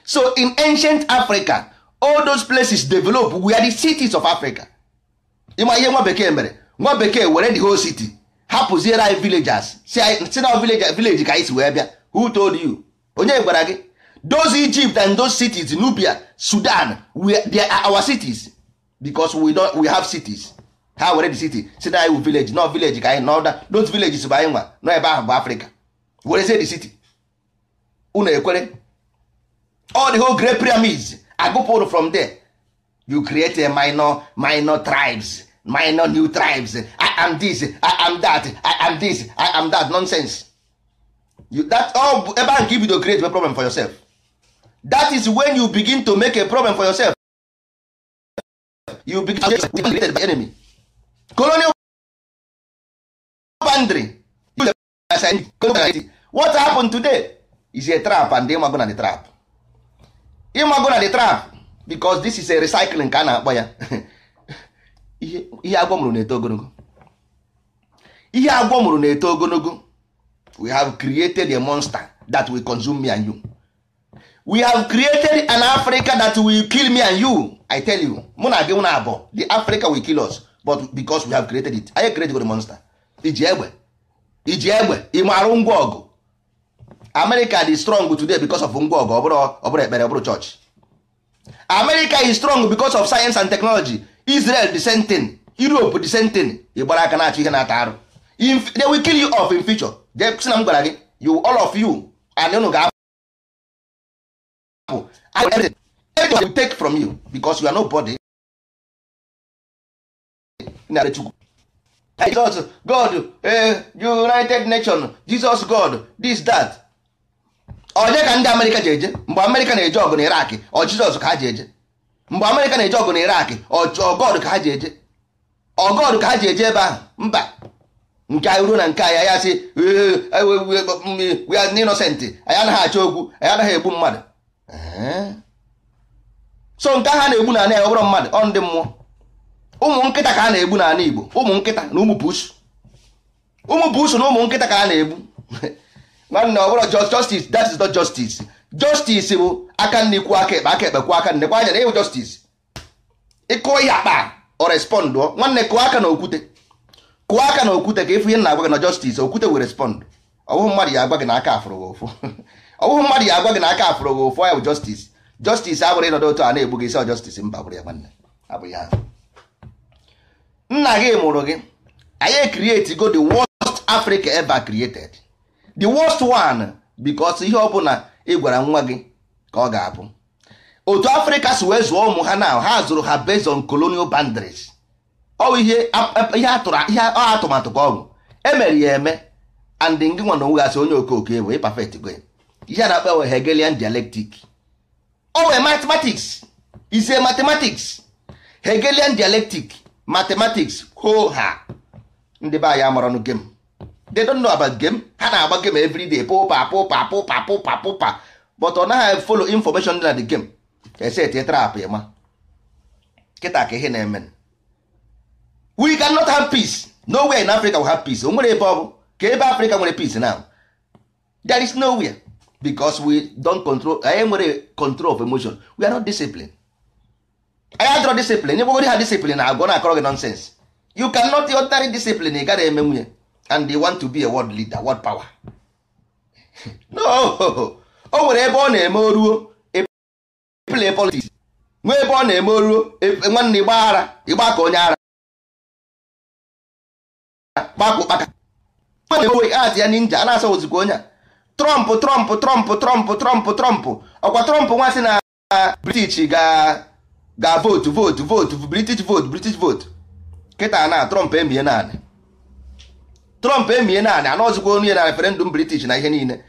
so in ancient Africa all those places develop were the cities of Africa ịma ihe nwa bekee mere nwa bekee were the whole city hapụziere anyị villagers si na village ka anyị si wee bịa who told you onye gwara gị those Egypt and those cities Nubia Sudan we they are our cities because we we have cities ha were the city say na iwu village no village ka anyị nọ those villages bụ anyị nwa n'o ebe ahụ bụ Africa say the city unu ekwere all the whole great pyramids agụpụrụ from there you create a minor minor tribes minor new tribes I am this I am that I am this I am that nonsense that all ebe ahụ nke ibido create a problem for yourself that is when you begin to make a problem for yourself you begin to be created by enemy colonial boundary what happened today is a trap and ịmago na the trap ịmago na the trap because this is a recycling ka a na-akpọ ya ihe agwọ mụrụ na-eto ogologo ihe agwọ mụrụ na-eto ogologo we have created a monster that will consume me and you we have created an africa that will kill me and you i tell you mụ na gị na abụọ the africa will kill us but because we have created it anyị created the monster iji egbe iji egbe ịmarụ ngwa ọgụ america dị strong today because of ngwa ọgụ ọ ekpere church america is strong because of science and technology israel the same thing europe the same thing ịgbara aka na-achọ ihe na-ata arụ they will kill you off in future jee na m gwara gị you all of you and unu ga-apụ everything we take from you because you are nobody narị Jesus God eh, United Nations Jesus God this that onye ka ndị Amerịka ji eje mgbe Amerịka na-eje ọgụ na Iraq ọ Jizọs ka ha ji eje mgbe Amerịka na-eje ọgụ na Iraq ọ God ka ha ji eje ọ ka ha ji eje ebe ahụ mba nke anyị ruo na nke anyị ya sị innocent anyị anaghị achọ okwu anyị anaghị egbu mmadụ so nke ahụ a na-egbu n'ala ya ọ bụrụ mmadụ ọ ndị mmụọ ụmụ nkịta ka a na-egbu n'ala Igbo ụmụ nkịta na ụmụ pusu ụmụ pusu na ụmụ nkịta ka a na-egbu nwanne ọ bụrụ justice that is not justice justice bụ aka nne kwuo aka ekpe aka ekpe aka nne kwa anya na ịwụ justice ịkụọ ihe akpa ọ respond nwanne kụọ aka na okwute kụọ aka na okwute ka ịfụ ihe na-agwa gị na justice okwute wee respond ọbụghị mmadụ ya agwa gị n'aka aka afụrụ gị ụfụ ọbụghị mmadụ ya agwa gị n'aka aka afụrụ gị ụfụ ya bụ justice justice abụrụ ịnọdụ otu a na-egbu gị isi justice mba bụrụ ya nwanne abụghị ha nna gị mụrụ gị anyị ekrieti go the worst Africa ever created the worst one because ihe ọ bụla ị gwara nwa gị ka ọ ga-abụ otu afrịka si wee zụọ ụmụ ha na ha zụrụ ha based on colonial boundaries ọwụ ihe atụmatụ ka ọ bụ emere e ya eme and ndị nwa na onwegasị onye okooko ebo ịpafet gwe ihe a na-akpa we hegelian dialectic ọ wee mathematics ise mathematics hegelian dialectic mathematics ho ha ndị be anyị amaranụ gem they don't know about gem ha na-agba gem everyday pụpa pụpa pụpa pụpa pụpa but ọ naghị follow information dị na the gem ese tie trap ya ma kịta ka ihe na-eme we cannot have peace nowhere in africa will have peace o nwere ebe ọ ka ebe africa nwere peace now there is nowhere because we don't control anyị nwere control of emotion we are not disciplined anyị adọrọ discipline ịgbagodi ha discipline na agwọ na-akọrọ gị nonsense you cannot ordinary discipline ị gara eme nwunye and they want to be a world leader world power no o nwere ebe ọ na-eme oruo e play politics nwee ebe ọ na-eme oruo e, nwanne ịgba ara ịgba ka onye ara kpakụkpaka enwe at ya ninja a na-asa ozikwa onye a trọmp trọmp trọmp trọmp trọmp trọmp ọkwa trọmp nwa sị na british ga votu votu votu british votu british votu kịta na trọmp emie naanị trọmp emie naanị anọzikwa onye na referendum british na ihe niile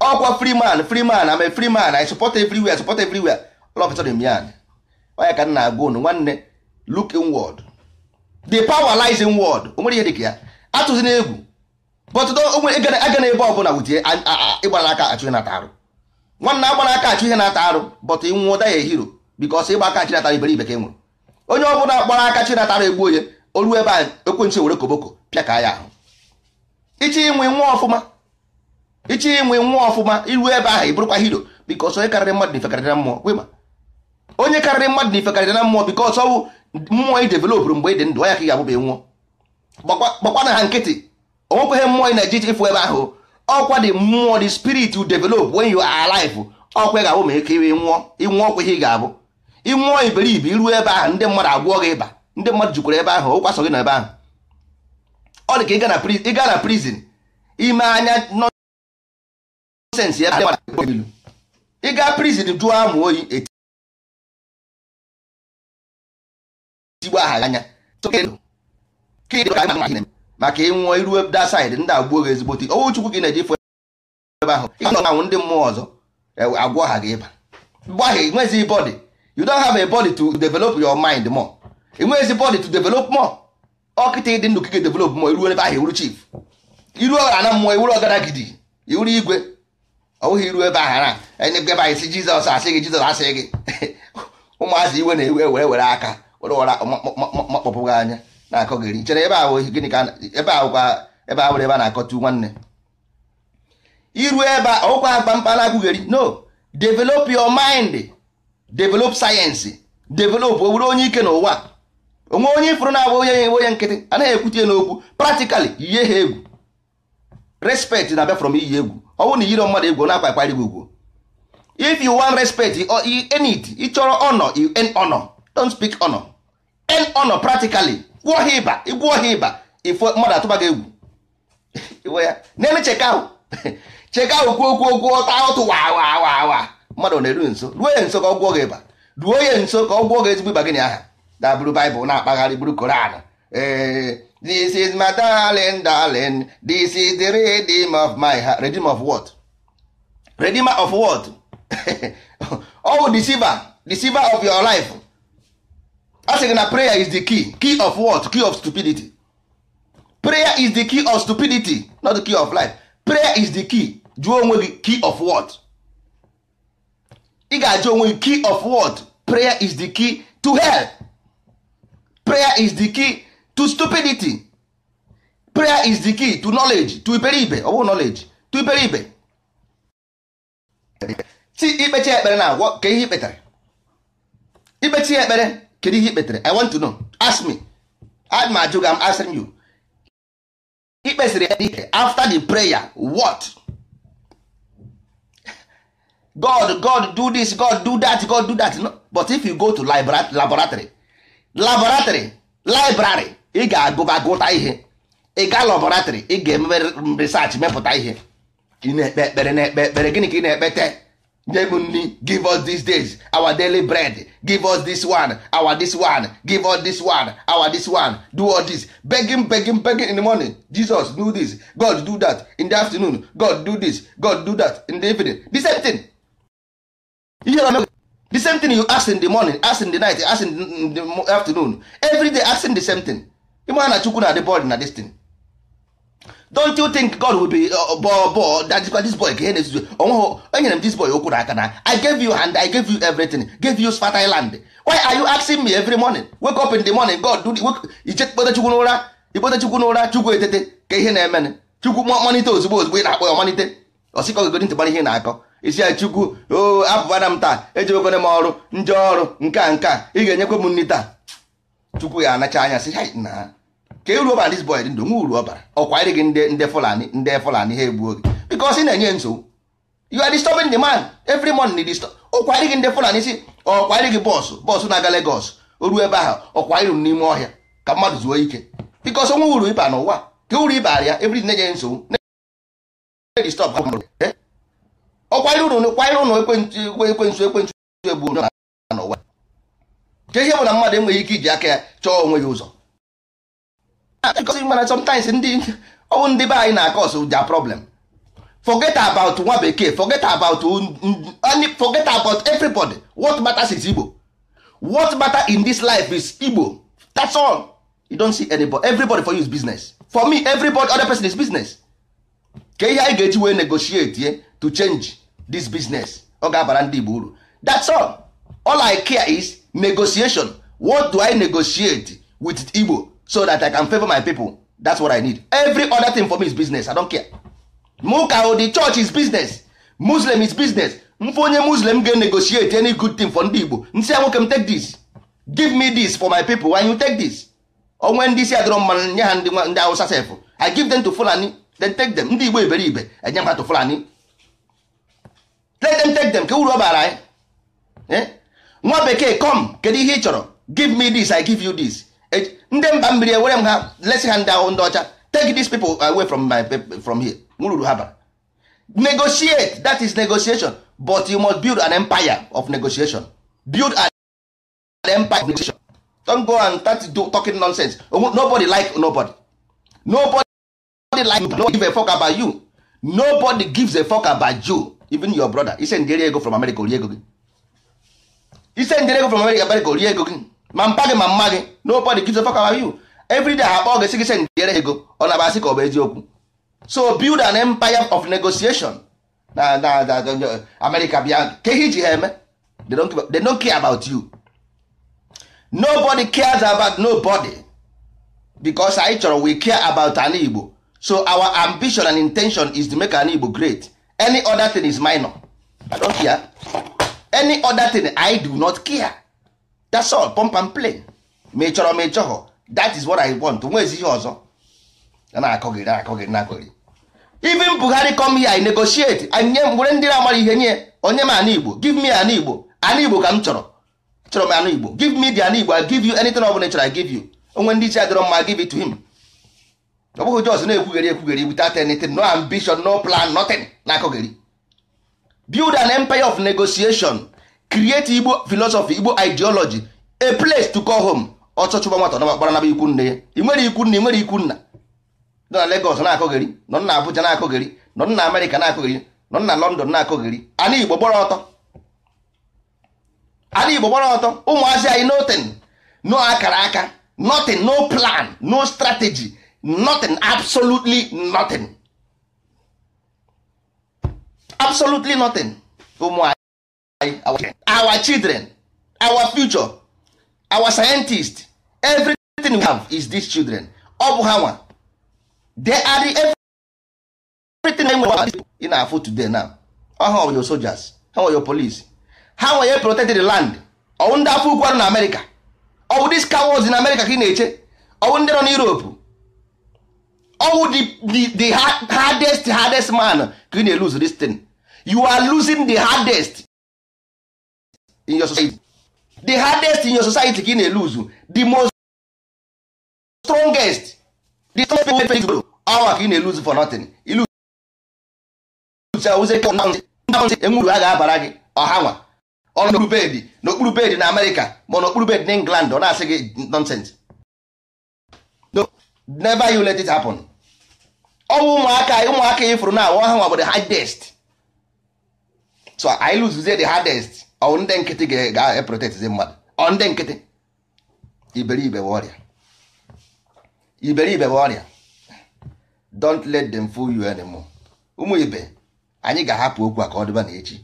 ọkwa free man free man am a free man i support everywhere support everywhere lọpụtara onye ka nna agwa unu nwanne look inward the power lies inward o nwere ihe dịka ya atụzina egwu aga na ebe ọbụla wutie ịgbara aka achụ ihe na-ata arụ nwanna agbara aka achụ ihe na arụ bọtụ ịnwụọ da ya ehiro bikọs ịgba aka chi natara iberibe ka e nwụrụ onye ọbụla gbara aka chi natara egbu onye olu ebe a ekwensu koboko pịa ya ahụ ichi nwa ọfụma ichi nwa ọfụma iru ebe ahụ ị hiro bikọs onye karịrị mmadụ na-efekarịrị na mmụọ gwema onye karịrị na mmụọ mgbe dị ndụ ya ka ị ga gbakwana ha nkịtị onwekweghị mmụọ ị na-eje ije ịfụ ebe ahụ ọkwa dị mmụọ dị spirit develop when you are alive ọkwa ga-abụ ma ike ịnwụọ ịnwụọ ọkwa ihe ị ga-abụ ịnwụọ iberibe iruo ebe ahụ ndị mmadụ agwụọ gị ịba ndị mmadụ jukwara ebe ahụ ụkwa so gị ebe ahụ ọ dị ka ịga na prison ime anya nọsensị ebe ilu ịga prison jụọ amụ oyi etigbo aha anya ma anyị maka ịnwụọ iruwe da saịdị ndị agbuo gị ezigbote owu chukwu gị na-eji fụ ebe ahụ ị na-anwụ ndị mmụọ ọzọ e, agwọ ha gị ịba gbaghị nwezi body you don't have a body to develop your mind more nwezi body to develop more ọkịta ịdị ndụ kike develop more iruo ebe ahụ iwuru chief iruo ọghara na mmụọ iwuru Gidi, iwuru igwe ọwụghị iru ebe ahara e, ebe anyị si jizọs asị gị jizọs asị gị ụmụazị iwe na-ewe were were aka were wara makpọpụ anya na-akọ gịrị chere ebe ahụ gịnị ka ebe ahụkwa ebe ahụ ebe a na-akọtu nwanne iru ebe a ọkwa agba mkpana agụgheri no develop your mind develop science develop o onye ike n'ụwa onwe onye ifuru na-abụ onye ya onye nkịtị anaghị ekwutie n'okwu practically yie ha egwu respect na abịa from iyi egwu ọ bụrụ na iyiro mmadụ egwu na akwa akparị ugwu if you want respect earn it ịchọrọ honor you earn honor don't speak honor earn honor practically gwụọ ha ịba ịgwụọ ha ịba ifo mmadụ atụba gị egwu iwe ya n'elu cheka ahụ cheka ahụ kwuo okwu okwu ọta ọtụ wa wa wa mmadụ na-eru nso ruo ya nso ka ọ gwụọ gị ịba ruo ya nso ka ọ gwụọ gị ezigbo ịba gịnị aha dabụrụ baịbụl na-akpagharị buru koran this is my darling darling this is the redeem of my heart redeem of what redeemer of what oh deceiver deceiver of your life a sị gị na prayer is the key key of what key of stupidity prayer is the key of stupidity not the key of life prayer is the key jụọ onwe gị key of what ị ga-ajụ onwe gị key of what prayer is the key to hell prayer is the key to stupidity prayer is the key to knowledge to iberibe ọ bụrụ knowledge to iberibe si ikpecha ekpere na agwọ ka ihe ikpetara ikpechi ekpere kedu ihe ikpetere i want to know ask me I'm ajụ gị I'm asking you ikpesiri ya after the prayer what God God do this God do that God do that no but if you go to laboratory laboratory library ị ga-agụba ihe ị ga laboratory ị ga research mepụta ihe ị na-ekpe ekpere na-ekpe ekpere gịnị ka ị na-ekpete heavenly give us these days our daily bread give us this one our this one give us this one our this one do all this begging begging begging in the morning jesus do this god do that in the afternoon god do this god do that in the evening the same thing the same thing you ask in the morning ask in the night ask in the afternoon every day asking the same thing ịma na chukwu na di bọd na destin don't you think God will be bọ uh, uh, bọ that this boy ka ihe na onweghị enyere m this boy okwu n'aka na I gave you hand I gave you everything gave you fertile land why are you asking me every morning wake up in the morning God do ije kpote chukwu n'ụra chukwu n'ụra chukwu etete ka ihe na-emenụ chukwu malite ozugbo ozugbo ị na-akpọ ya malite ọsịkọ gogodi ntị ihe na-akọ isi ya chukwu oo abụbana m taa ejewekwana m ọrụ ndị ọrụ nke a nke a ị ga-enyekwa m nri taa chukwu ya anacha anya sị ha na ka uru ọbara dis boy dị ndụ nwe uru ọbara ọkwa ịrị gị ndị fulani ndị fulani ha egbuo gị because ị na-enye nsogbu you are disturbing the man every morning disturb ọkwa ịrị gị ndị fulani si ọkwa ịrị gị bọọsụ bọọsụ na-aga Legos. o ruo ebe ahụ ọkwa ịrụ n'ime ọhịa ka mmadụ zuo ike because onwe uru ịba n'ụwa ka uru ịba ya every na-enye nsogbu disturb ọkwanyere ụnụ kwanyere ụnụ ekwensu ekwensu egbu n'ụwa ka ihe bụ na mmadụ enweghị ike iji aka ya chọọ onwe ya ụzọ because mana sometimes ndị ọwụ ndị be anyị na-akọs their problem forget about nwa bekee forget about forget about everybody what matters is Igbo what matters in this life is Igbo that's all you don't see anybody everybody for you is business for me everybody other person is business ka ihe anyị ga-eji wee negotiate to change this business ọ ga-abara ndị Igbo uru that's all all I care is negotiation what do I negotiate with Igbo so that i can favor my people that's what i need every other thing for me is business i don't care muka o the church is business muslim is business mfe onye muslim ga-negotiate any good thing for ndị igbo nsị ya nwoke m take this give me this for my people why you take this onwe ndị isi adịrọ mmanụ nye ha ndị ndị awụsa sef i give them to fulani then take them ndị igbo iberibe enye ha to fulani let them take them ka uru ọ bara anyị eh? nwa bekee come kedu ihe ị chọrọ give me this i give you this ndị mba mmiri ewere m ha lesi ha ndị ahụ ndị ọcha take these people away from my from here ruru ha bara negotiate that is negotiation but you must build an empire of negotiation build an empire of negotiation don't go and start do talking nonsense nobody like nobody nobody like nobody give a fuck about you nobody gives a fuck about you even your brother ise ndere ego from America orie ego gi. ise ndere ego from America America orie ego gi. ma mpa gị ma mma gị nobody gives a fuck about you every day ha akpọ gị sị gị send ego ọ na abasị ka ọ bụ eziokwu so build an empire of negotiation na na na America bịa ka ihe iji ha eme they don't care about you nobody cares about nobody because anyị chọrọ we care about an Igbo so our ambition and intention is to make an Igbo great any other thing is minor I don't care any other thing I do not care that's all pump ma ị is what i want nwezi ihe ọzọ na na na even Buhari come here i negotiate anye were ndị na-amara ihe nye onye m anụ Igbo give me anụ Igbo anụ Igbo ka m chọrọ chọrọ m anụ Igbo give me the anụ Igbo i give you anything i give you onwe ndị isi adịrọ mma give it to him ọ bụghị no ambition no plan nothing na-akọgheri build an empire of negotiation create igbo philosophy igbo ideology a place to call home ọchọ chụba nwata na gbara naba ikwu nne ya ị nwere ikwu nna ị nwere ikwu nna nọ na Lagos na-akọgheri nọ na Abuja na-akọgheri nọ na Amerịka na-akọgheri nọ na London na-akọgheri ana Igbo gbara ọtọ ana Igbo gbara ọtọ ụmụazị anyị nothing no akara aka nothing no plan no strategy nothing absolutely nothing absolutely nothing ụmụ our children our future our scientist everything we have is these children ọ bụ ha nwa they are the everything na nwere ị na-afụ today now ha nwe your soldiers ha nwe your police ha nwe ye protect the land ọwụ ndị afọ ukwu arụ na amerịka ọwụ dis cowards in America ka ị na-eche ọwụ ndị nọ na europe ọwụ the hardest hardest man ka ị na-elose this thing you are losing the hardest in your society the hardest in your society ka ị na-eluzu the most strongest the strongest people wey gboro awa ka ị na-eluzu for nothing ilu awụzie ka ndị enwuru a ga-abara gị ọha nwa ọnụ n'okpuru bedi n'okpuru bedi na amerịka ma n'okpuru bedi na england ọ na-asị gị nonsense never you let it happen ọnwụ ụmụaka ụmụaka ifuru e na awa ha nwa bụ the hardest so i lụzuzie the hardest ọ ndị nkịtị ga-eprotetizi mmadụ ọ ndị nkịtị iberibe ọrịa iberibe ọrịa don't let them fool you anymore ụmụ ibe anyị ga-ahapụ okwu a ka ọ dịba na echi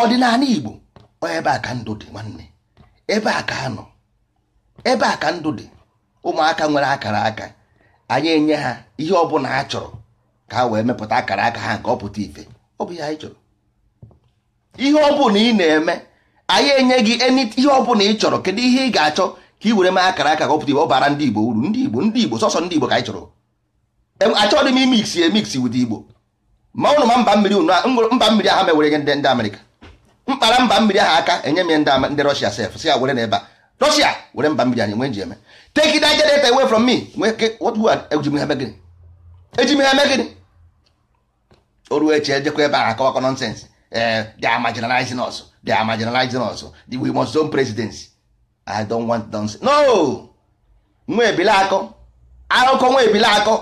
ọdịnala igbo ebe a ka ndụ dị nwanne ebe a ka anọ ebe a ka ndụ dị ụmụaka nwere akara aka anyị enye ha ihe ọ bụla ha chọrọ ka ha wee mepụta akara aka ha nke ọ pụta ife ọ bụ ihe anyị chọrọ ihe ọ bụla ị na-eme anyị enye gị ihe ọbụla ị chọrọ kedu ihe ị ga-achọ ka ị were mee akara aka gọpụta ibe ọ bara ndị igbo uru ndị igbo ndị igbo sọsọ ndị igbo ka anyị chọrọ achọghị m imix emix wit igbo ma ụnụ ma mba mmiri mba mmiri aha mewere gị ndị amerịka mkpara mba mmiri ahụ aka enye m ndị rọshia sef si ya were n'ebe a rọshia were mba mmiri anyị nwee nji eme take it generator away from me eji m ha megịnị o ruo eche ejekwa ebe ahụ akọwakọ nọnsensị Eh, they are marginalizing us they are marginalizing us we must own presidency i don't want nonsense no nwa ebile akọ akụkọ nwa ebile akọ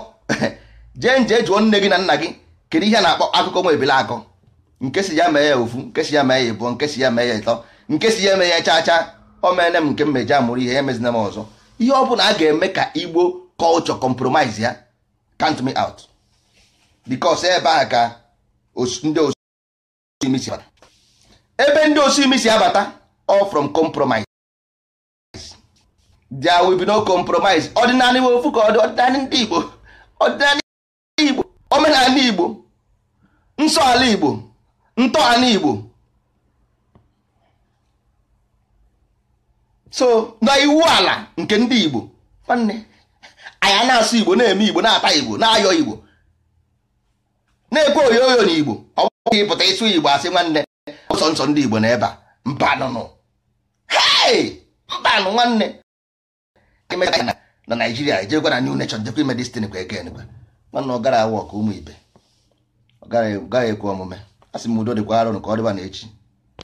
jee nje jụọ nne gị na nna gị kedu ihe a na-akpọ akụkọ nwa ebile akọ nke si ya mee ya ofu nke si ya mee ya ịbụọ nke si ya mee ya ịtọ nke si ya mee ya chacha chaa o meele m nke mmeje amụrụ ihe ya emezina m ọzọ ihe ọ bụla a ga-eme ka igbo culture compromise ya count me out because ebe a ka ndị bata ebe ndị osi imi si abata all from compromise there will be no compromise ọdịnala ofu ka ọdịnala ndị Igbo ọdịnala Igbo omenala Igbo nsọ ala Igbo ntọala Igbo so na iwu ala nke ndị Igbo nwanne anyị na-asụ Igbo na-eme Igbo na-ata Igbo na-ayọ Igbo na-ekwe oyoyo na Igbo oge ịpụta ịsụ igbo asị nwanne ụsọ nsọ ndị igbo na ebe mba mbanụnụ hei mbanụ nwanne na naijiria gwa na new nation jekwa ime destin kwa eke gwa nwanne ọ gara awa ọkụ ụmụ ibe ọ gaghị ekwu omume asị m udo dịkwa arụ ka ọ dịba na echi